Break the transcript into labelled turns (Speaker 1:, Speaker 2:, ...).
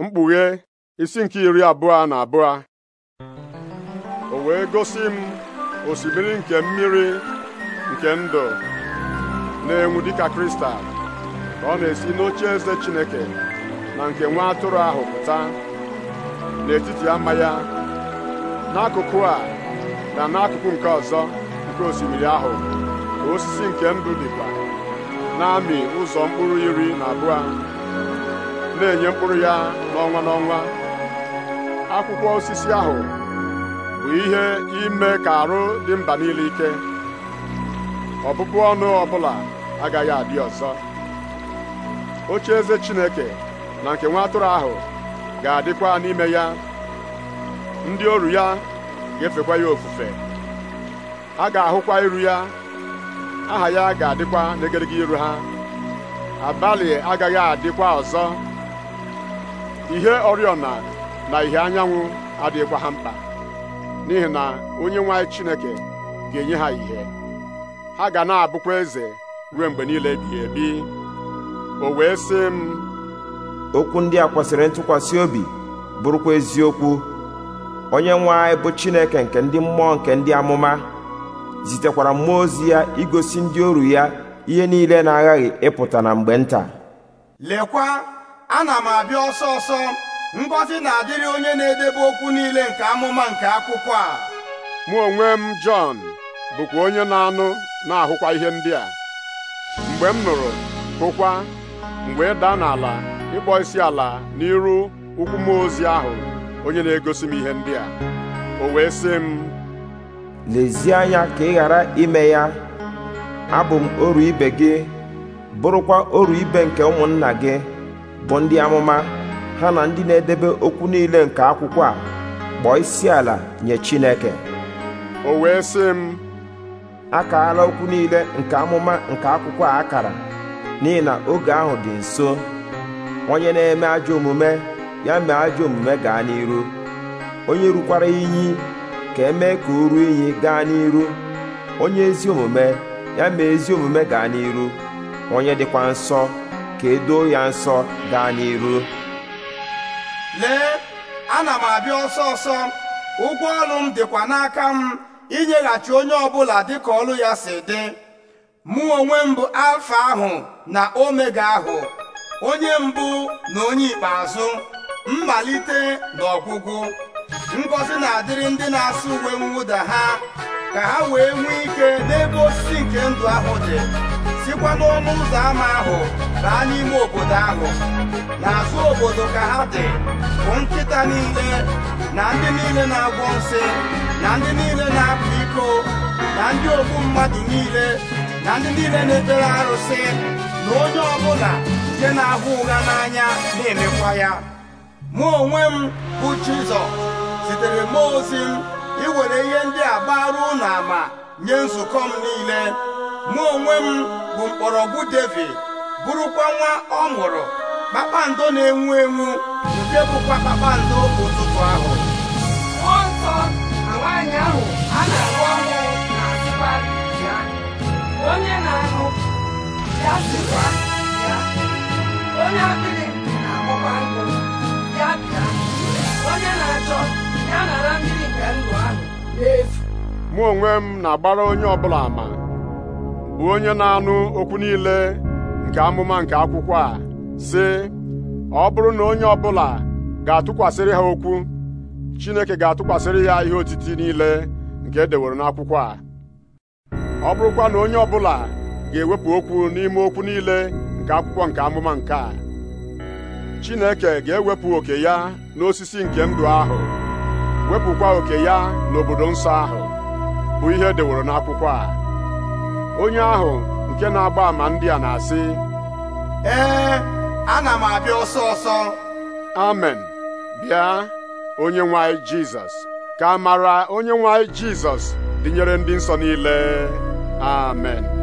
Speaker 1: mkpughe isi nke iri abụọ na abụọ o wee gosi m osimiri nke mmiri nke ndụ na-enwu dịka kristal ka ọ na-esi n'oche eze Chineke na nke nwa atụrụ ahụ pụta n'etiti ama ya n'akụkụ a na n'akụkụ nke ọzọ nke osimiri ahụ osisi nke ndụ dịkwa na-amị ụzọ mkpụrụ iri na abụọ na-enye mkpụrụ ya n'ọnwa n'ọnwa akwụkwọ osisi ahụ bụ ihe ime ka arụ dị mba niile ike ọbụbụ ọnụ ọbụla agaghị adị ọzọ oche eze Chineke na nke nwa atụrụ ahụ ga-adịkwa n'ime ya ndị oru ya ga-efekwa ya ofufe ha ga-ahụkwa iru ya aha ya ga-adịkwa n'egedege iru ha abalị agaghị adịkwa ọzọ ihe oriọna na ihe anyanwụ adịghịkwa ha mkpa n'ihi na onye nwanyị Chineke ga-enye ha ihe ha ga na-abụkwa eze ruo mgbe niile ebighị ebi o wee sị m okwu ndị a
Speaker 2: kwesịrị ntụkwasị obi bụrụkwa eziokwu onye nwe bụ Chineke nke ndị mmụọ nke ndị amụma zitekwara mmụọ ozi ya igosi ndị oru ya ihe niile na-aghaghị ịpụta na mgbe nta
Speaker 3: lekwa ana m abịa ọsọ ọsọ ngọzi na-adịrị onye na-edebe okwu niile nke amụma nke akwụkwọ a
Speaker 1: mụ onwe m Jọn bụkwa onye na-anụ na-ahụkwa ihe ndị a mgbe m nụrụ hụkwa mgbe wee daa n'ala ịkpọ isi ala n'iru ụkwụ m ozi ahụ onye na-egosi m ihe ndị a o wee sị m
Speaker 2: lezie anya ka ị ghara ime ya abụ m oru ibe gị bụrụkwa oru ibe nke ụmụnna gị bụ ndị amụma ha na ndị na-edebe okwu niile nke akwụkwọ a kpọọ isi ala nye Chineke o wee sị m akaala okwu niile nke amụma nke akwụkwọ a akara n'ihi na oge ahụ dị nso onye na-eme ajọ omume ya mee ajọ omume gaa n'iru onye rukwara iyi ka emee ka o ruo iyi gaa n'iru onye ezi omume ya mee ezi omume gaa n'iru onye dịkwa nsọ ka edoo ya nsọ gaa n'iru
Speaker 3: lee ana m abịa ọsọ ọsọ ụgwọ ọrụ m dịkwa n'aka m inyeghachi onye ọbụla dịka ọrụ ya si dị mụ onwe m bụ alfa ahụ na omega ahụ onye mbụ na onye ikpeazụ mmalite na ọgwụgwụ ngọzi na-adịrị ndị na-asụ uwe mwụda ha ka ha wee nwee ike n'ebe osisi nke ndụ ahụ dị sikwa n'ọnụ ụzọ ámá ahụ baa n'ime obodo ahụ n'azụ obodo ka ha dị bụ nkịta niile na ndị niile na-agwọ nsị na ndị niile na-apụ iko na ndị ogbu mmadụ niile na ndị niile na-ebere arụsị na onye ọbụla nke na-ahụ ụgha n'anya na-emekwa ya mụ onwe m bụ Jizọ zitere mmụọ ozi m iwere ihe ndị a gbara ama nye nzukọ m niile mụ onwe m bụ mkpọrọgwụ david bụrụkwa nwa ọ mụrụ kpakpando na-enwu enwu nke bụkwa kpakpando ụtụtụ ahụ nsọ na ahụ a na na ya onye na-anụ ya ya onye na
Speaker 1: mụ onwe m na-agbara onye ọbụla ama bụ onye na-anụ okwu niile nke amụma nke akwụkwọ a sị ọ bụrụ na onye ọbụla ga-atụkwasịrị ha okwu Chineke ga-atụkwasịrị ya ihe otiti niile nke edeworo n'akwụkwọ a ọ bụrụkwa na onye ọbụla ga-ewepụ okwu n'ime okwu niile nke akwụkwọ nke amụma nke a Chineke ga-ewepụ oke ya n'osisi nke ndụ ahụ wepụkwa oke ya n'obodo nsọ ahụ bụ ihe edeworo n'akwụkwọ a onye ahụ nke na-agba ama ndị a na-asị ee ana m abịa ọsọ ọsọ amen bịa onye nwe jizọs ka a mara onye nwanyị jizọs dịnyere ndị nsọ niile amen